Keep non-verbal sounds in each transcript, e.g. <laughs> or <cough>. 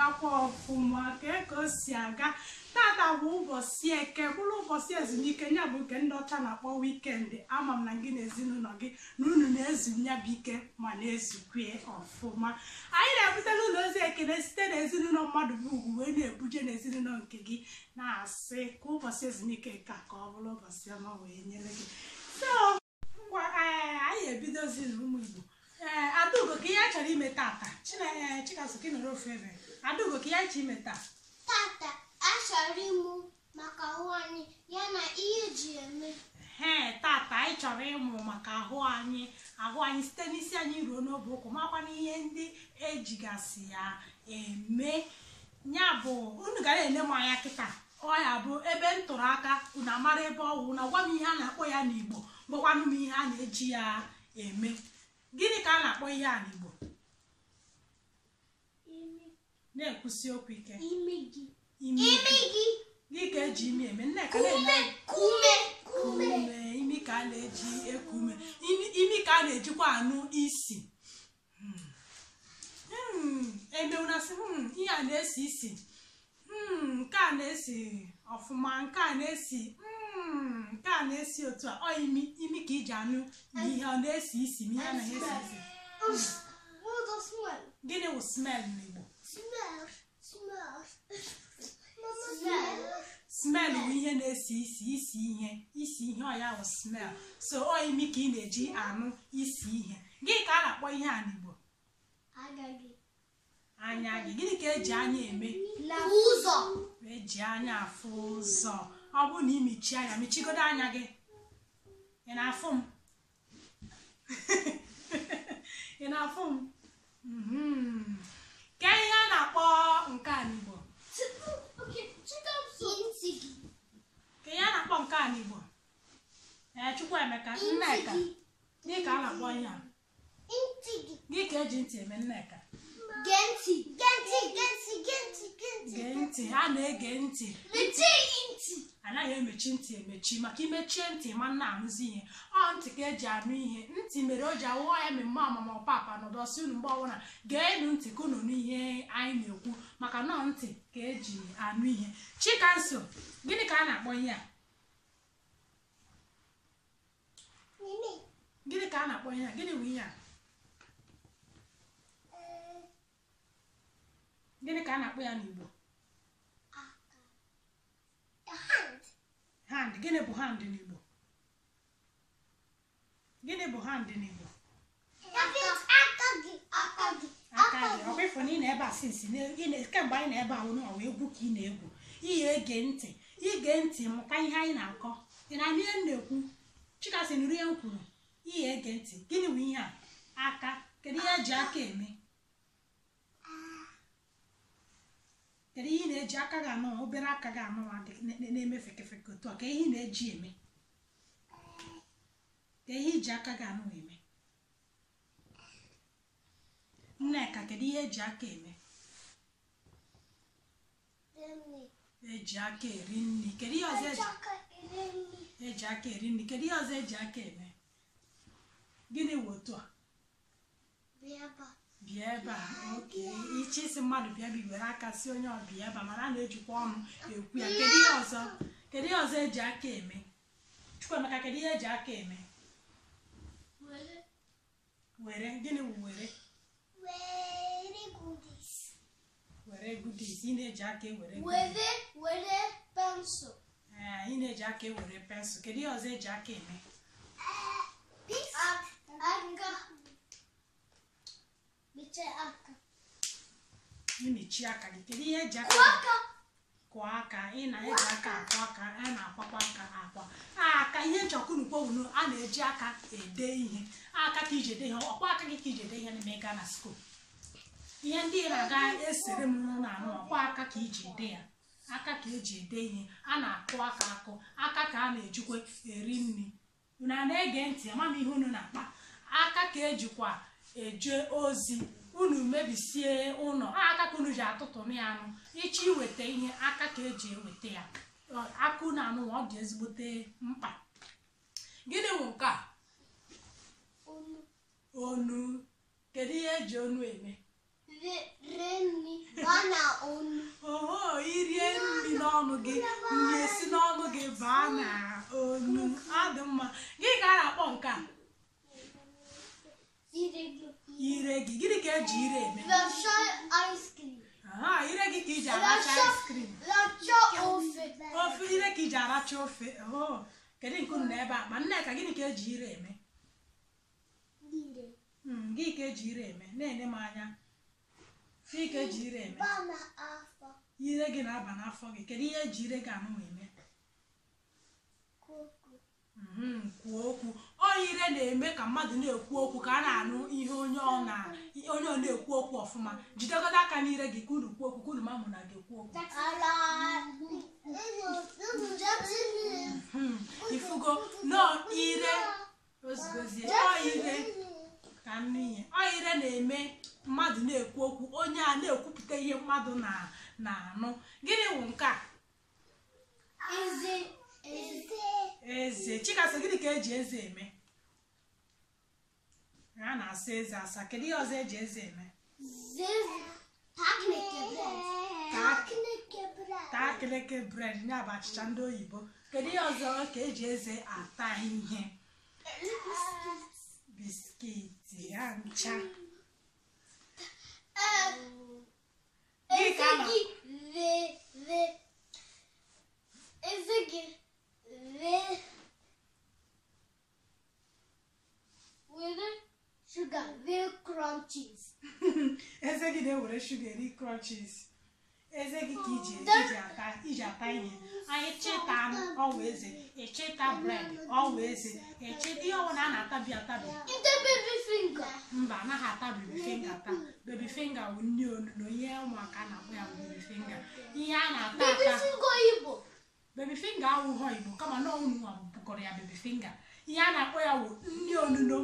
na-agakwa ọfụma kee ka o si aga tata bụ ụbọchị eke bụrụ ụbọchị ezumike ya bụ nke ndị ọcha na-akpọ wikendị ama m na gị na ezinụlọ gị na unu na-ezu ya bụ ike ma na-ezukwe ọfụma anyị na-ebute n'ụlọ ozi ekele site na ezinụlọ mmadụ bụ ugwu wee na-ebuje na ezinụlọ nke gị na-asị ka ụbọchị ezumike ka ka ọ bụrụ ụbọchị ọma wee nyere gị ngwa eh, anyị ebidozi na ụmụ igbo ee eh, adaugo ka ihe a chọrọ ime tata eh, adaugo ka ya ji meta. tata achọrọ ịmụ maka ahụ anyị ya na ihe ji eme ee tata anyị chọrọ ịmụ maka ahụ anyị ahụ anyị site n'isi anyị ruo n'obe ụkwụ makwana ihe ndị ejigasị ya eme ya bụ unu gara ele m anya kịta ọ ya bụ ebe m tụrụ aka unu amara ebe ọ na gwa m ihe a na-akpọ ya n'igbo gwakwanụ m ihe a na-eji ya eme gịnị ka a na-akpọ ihe a n'igbo na-ekwusi okwu ike imeji imeji gị ka eji imi eme nneka na-eme ume ume imi ka a na-eji eku ume imi ka a na-ejikwa anụ isi hmm. hmm. emeunasị hmm, ihe a na-esi isi nke a na-esi ọfụma nke a na-esi nke a na-esi otu a imi imi ka iji anụ ihe ọ na-esi isi ihe a na-esi isi gịnị wụ smell smel bụ ihe na-esi isi isi ihe isi ihe ọ ya bụ smel so ọ imi ka ị na-eji anụ isi ihe gị ka a na-akpọ ihe a n'Igbo anya gị gịnị ka eji anya eme ụzọ eji anya afụ ụzọ ọ bụrụ na imichi anya michigodo anya gị ị na-afụ m <laughs> ị na-afụ m mhm. ke ihe a na-akpọ nke a n'Igbo ka ihe a na-akpọ nke a n'Igbo ee Chukwuemeka Nneka gị ka a na-akpọ ihe a gị ka eji ntị eme Nneka gee ntị ha na-ege ntị anaghị emechi ntị emechi maka imechie ntị ma nna ahụzi ihe ọ ntị ka eji anụ ihe ntị mere o ji awụọ ya mmemme ọmụmụ papa nọdọsị unu mgbe ọbụla geenụ ntị ka n'ihe anyị na-ekwu maka nọ ntị ka eji anụ ihe a na-akpọ ya n'igbo ah, ah. hand gịnị bụ hand n'igbo gịnị bụ hand n'igbo na ị na-ebe a sinsi kemgbe anyị na-ebe ahụ na ọwa egwu ka ị na-egwu ihe ege ntị ige ntị mụkwa ihe anyị na-akọ ị na-anụ ihe m na-ekwu chikasị nri ihe m kwuru ihe ege ntị gịnị bụ ihe a aka kedu ihe eji aka eme kedu ihe na-eji aka gị anụnwa obere aka gị anụnwa na-eme fekefeke otu a ka ihe na-eji eme ka ihe iji aka gị anụnwa eme nneka kedu ihe eji aka eme eji aka eri nri kedu ihe ọzọ eji aka eri nri kedu ihe ọzọ eji aka eme gịnị wụ otu a bịa ebe a oke iche isi mmadụ bịa biwere aka si onye ọbịa ebe a mana a na-ejikwa ọnụ ekwu ya kedu ihe ọzọ kedu ihe ọzọ eji aka eme Chukwuemeka kedu ihe eji aka eme were gịnị were? were were goodies ị na-eji aka ewere were were pensụl ee ị na-eji aka ewere pensụl kedu ihe ọzọ eji aka eme mechie aka ị mechie aka gị kedu ihe eji aka kụọ aka ị na-eji aka akụ aka a na-akwakwa aka akwa aka ihe eji ọkụnukpowunu a na-eji aka ede ihe aka ka iji ede ihe ọkwa aka gị ka iji ede ihe n'ime gaa na skul ihe ndị na-aga esere m n'ụlọ anụ ọkwa aka ka iji ede ya aka ka eji ede ihe a na-akụ aka akụ aka ka a na-ejikwa eri nri na na-ege ntị ama ihe unu na-akpa aka ka ejikwa eje ozi unu mebisie ụlọ aka ka unu ji atụtụnụ ya anụ ichi iweta ihe aka ka eji eweta ya akụ na anụ ọ dị ezigbote mkpa gịnị bụ nke a onu kedu ihe eji onu eme oho irie nri n'ọnụ gị nri esi n'ọnụ gị baa na onu ọ dị mma gị ka a na-akpọ nke a ire gị gịnị ka eji ire eme aha ire gị ka iji aracha ice cream ofe ire ka iji aracha ofe kedu nke unu ebe a ma nneka gịnị ka eji ire eme hmm, gị ka eji ire eme na-enye m anya gị ka eji ire eme ire gị na-aba n'afọ gị kedu ihe eji ire gị anụnwa eme Mhm, kwuo okwu oyire na-eme ka mmadụ na-ekwu okwu ka a na-anụ ihe onye ọ na-ekwu okwu ọfụma jidegodo aka n'ire gị ka unu kwuo okwu ka unu mamụ na gị mhm, eme mmadụ na-ekwu okwu onye a na-ekwupụta ihe mmadụ na-anụ gịnị bụ nke a eze chikasị gịnị ka eji eze eme a na-asa eze asa kedu ihe ọzọ eji eze eme taa keleke bred nye bụ achịcha ndị oyibo kedu ihe ọzọ ka eji eze ata ihe biskiti ya ncha eze gị were sugar ve crunchies <laughs> eze gị na-ewere shuga eri crumb eze gị ka iji iji ata iji ata ihe anyị cheta anụ ọwụ eze echeta bred ọwụ eze echeta ihe ọwụ na a na-atabi atabi ndị bebi mba anaghị ata bebi finga taa bebi finga bụ nri olu ụmụaka na-akpọ ya bebi finga ihe a na-ata ata bebi finga awụghọ igbo kama na ọnwa bụkọrọ ya bebi finga ihe a na-akpọ ya wụ nri onuno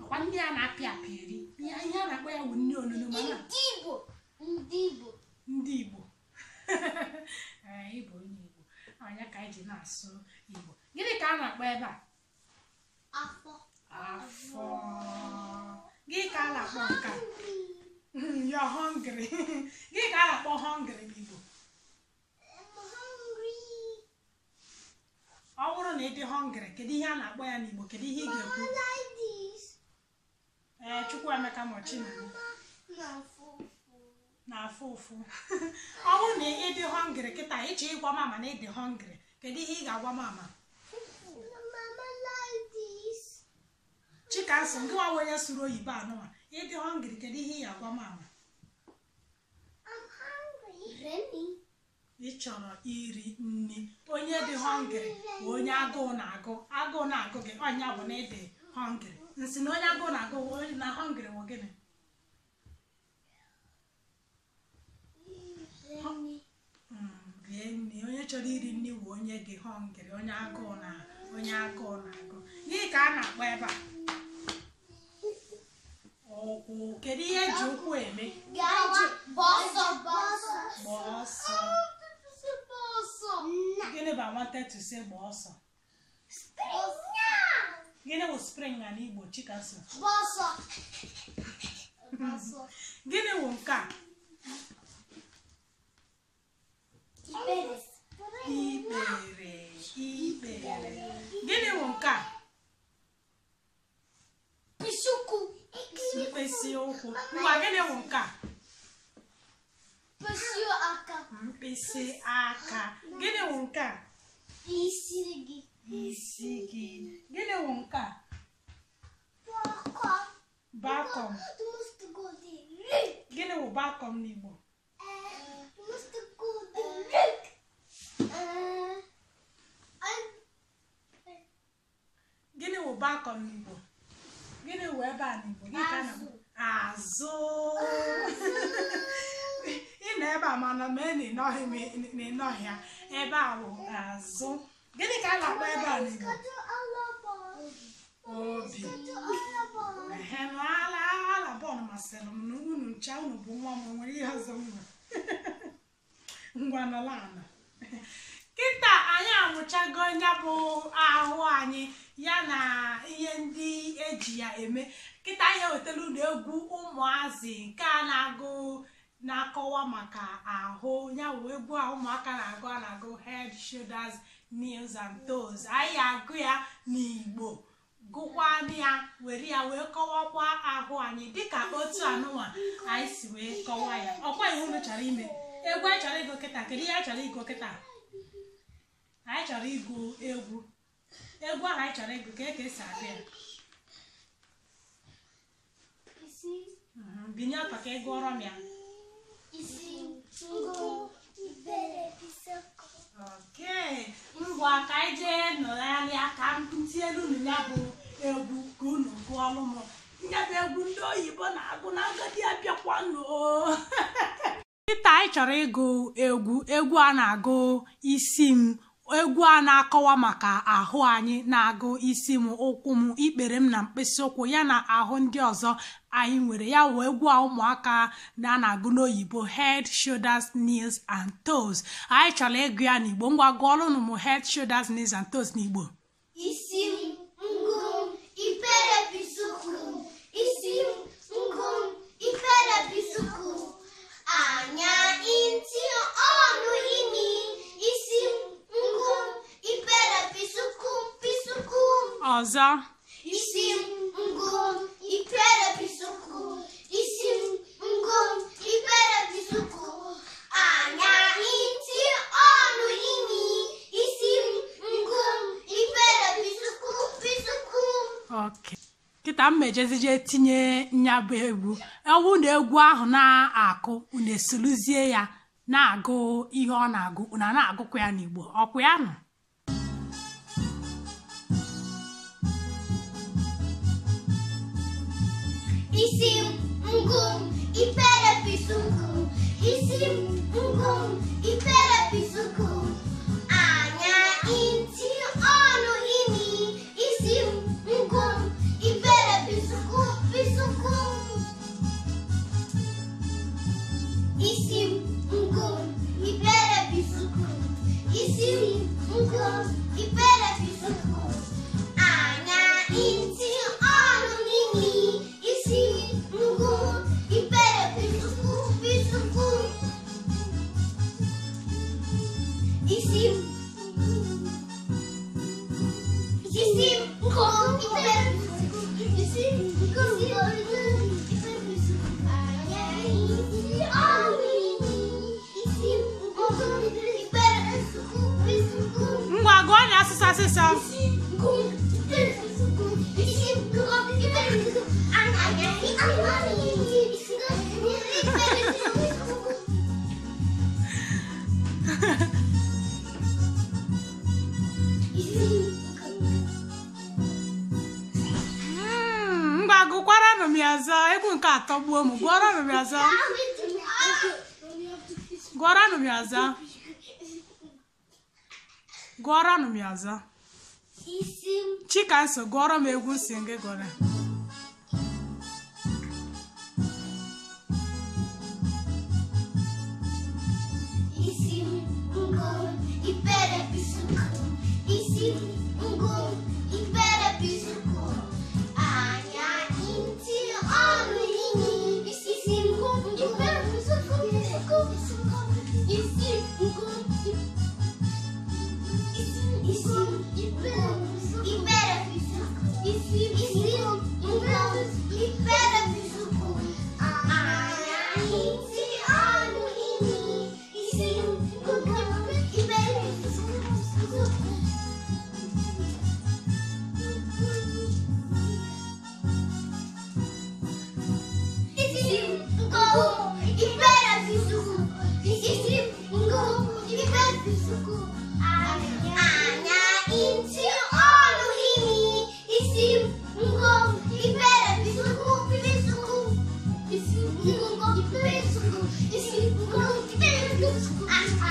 akwa ndị a na-apị apị eri ihe a na-akpọ ya wụ nri onuno ndị igbo ndị igbo ndị igbo <laughs> ịbụ onye igbo anya ka anyị ji na-asụ igbo gịnị ka a na-akpọ ebe a afọ afọ gịnị ka a na-akpọ nka <laughs> you're hungry <laughs> gịnị ka a na-akpọ hungry n'igbo ọ bụrụ na ị dị họngrị kedu ihe a na-akpọ ya n'Igbo kedu ihe ị ga-ekwu ee Chukwuemeka Mochina na-afụ ụfụ ọ bụrụ na ị dị họngrị kịta ịchọ ịgwa mama na ị dị họngrị kedu ihe ị ga-agwa mama Chikamso ngịwa onye sụrụ oyibo anụwa ịdị họngrị kedu ihe ị ga-agwa mama ị chọrọ iri nri onye dị hungry bụ onye agụụ na-agụ agụụ na-agụ gị anya bụ na ịdị hungry nsị na onye agụụ na-agụ onye na hungry bụ gịnị nri hmm, onye chọrọ iri nri bụ onye gị hungry onye agụụ na onye agụụ na-agụ gị ka a na-akpọ ebe a ụkwụ kedu ihe eji ụkwụ eme ise gba ọsọ gịnị wụ spring na n'igbo chika so gịnị wụ nke a ikpere ikpere gịnị wụ nke a mkpịsị ụkwụ ngwa gịnị wụ nke a mkpịsị aka gịnị wụ nke a Isigi. Isigi. Gịnị wụ nke a? Bakọm. Bakọm. Gịnị wụ bakọm n'Igbo? Gịnị wụ bakọm n'Igbo? Gịnị wụ ebe a n'Igbo? Gịnị ka na-azụ. azụ ị nọ ebe a mana ma ịnọghị m ịnọghị ya ebe a bụ azụ gịnị ka a na-akpọ ebe a n'igbo obi ala ala bọọlụ masịrị m na unu ncha unu bụ nwa m nwere ihe ọzọ nwa <laughs> ngwa nala ala kịta anyị amụchago ya bụ ahụ anyị ya na ihe ndị eji ya eme kịta anyị ewetara unu egwu ụmụazị nke a na-agụ na-akọwa maka ahụ yawụ egwu a ụmụaka na-agụ a na-agụ head shoulders knees and toes anyị agụ ya n'igbo gụkwanụ ya were ya wee kọwakwa ahụ anyị dịka otu anụnwa anyị si wee kọwa ya ọkwa ihe unu chọrọ ime egwu anyị chọrọ ịgụ kịta kedu ihe anyị chọrọ ịgụ kịta anyị chọrọ ịgụ egwu egwu ahụ anyị chọrọ ịgụ ka e ka esi agụ ya binye ọtọ ka ị gụọrọ m ya ngwa ka anyị jee nọgharịa ka m elu unu ya bụ egwu ka unu gụọlụ m ya bụ egwu ndị oyibo na-agụ na agadi abịakwa nkịta anyị chọrọ ịgụ egwu egwu a na-agụ isi m egwu a na-akọwa maka ahụ anyị na-agụ isi m ụkwụ m ikpere m na mkpịsị ụkwụ ya na ahụ ndị ọzọ anyị nwere ya wee gwa ụmụaka na na-agụ n'oyibo head shoulders knees and toes anyị chọrọ ịgụ ya n'igbo ngwa gụọlụ nụ head shoulders knees and toes n'igbo isi ngụ ipere bisuku isi ngụ ipere bisuku anya ntị ọnụ imi isi ngụ ipere bisuku bisuku ọzọ ka m mejezije tinye nya bụ egwu ewu na egwu ahụ na-akụ unu esuluzie ya na-agụ ihe ọ na-agụ una na-agụkwa ya n'igbo ọkwa ya nọ isi ngụm ipere pisuku isi ngụm Sim, um gosto de perebiçu. kagbuo mụ gwọrọ m bịa zaa gwọrọ nụ bịa zaa gwọrọ nụ bịa zaa chika nso gwọrọ m egwu nsị gị gwọrọ ọ ndị igbo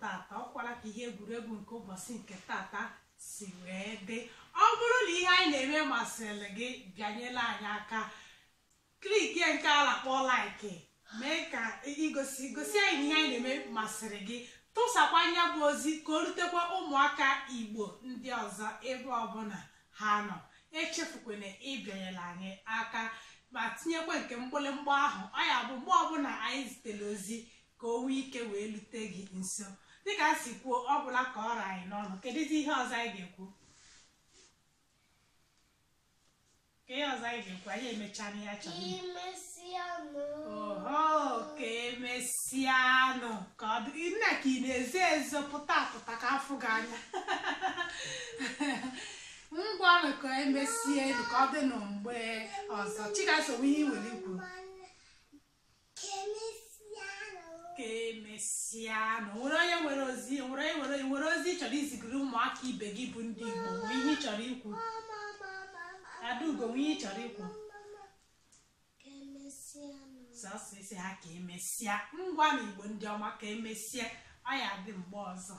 ka ka ihe egwuregwu nke ụbọchị nke tata si wee dị ọ bụrụ na ihe anyị na-eme masịrị gị bịanyela anyị aka kliki nke a na laiki mee ka igosi gosi anyị ihe anyị na-eme masịrị gị tụsakwa anya bụ ozi ka o rutekwa ụmụaka igbo ndị ọzọ ebe ọbụla ha nọ echefukwana ịbịanyela anyị aka ma tinyekwa nke mgbịlịmgba ahụ ọ ya bụ mgbe ọbụla anyị zitere ozi ka o nwee ike wee lute gị nso dịka a si kwuo ọ bụla ka ọra anyị n'ọnụ kedụzi ihe ọzọ anyị ga-ekwu ka ihe ọzọ anyị ga nkwa anyị emechaa ya achọrọ oho ka emesịanụ ka ọ dị nna ka ị na eze ezo pụta apụta ka afụ gị anya <laughs> ngwanụ ka emesie elu ka ọ dị nụ mgbe ọzọ chigasowe ihe iwere ikwu ka emesịanụ nwere onye nwere ozi nwere onye nwere ozi ị chọrọ izigiri ụmụaka ibe gị bụ ndị Igbo ihe ị chọrọ ikwu adaugo nwunye ị chọrọ ịkwụ. sọsọ isi ha ka emesịa ngwa na igbo ndị ọma ka emesịa ọ ya dị mgbe ọzọ